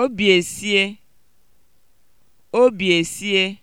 Obi esie.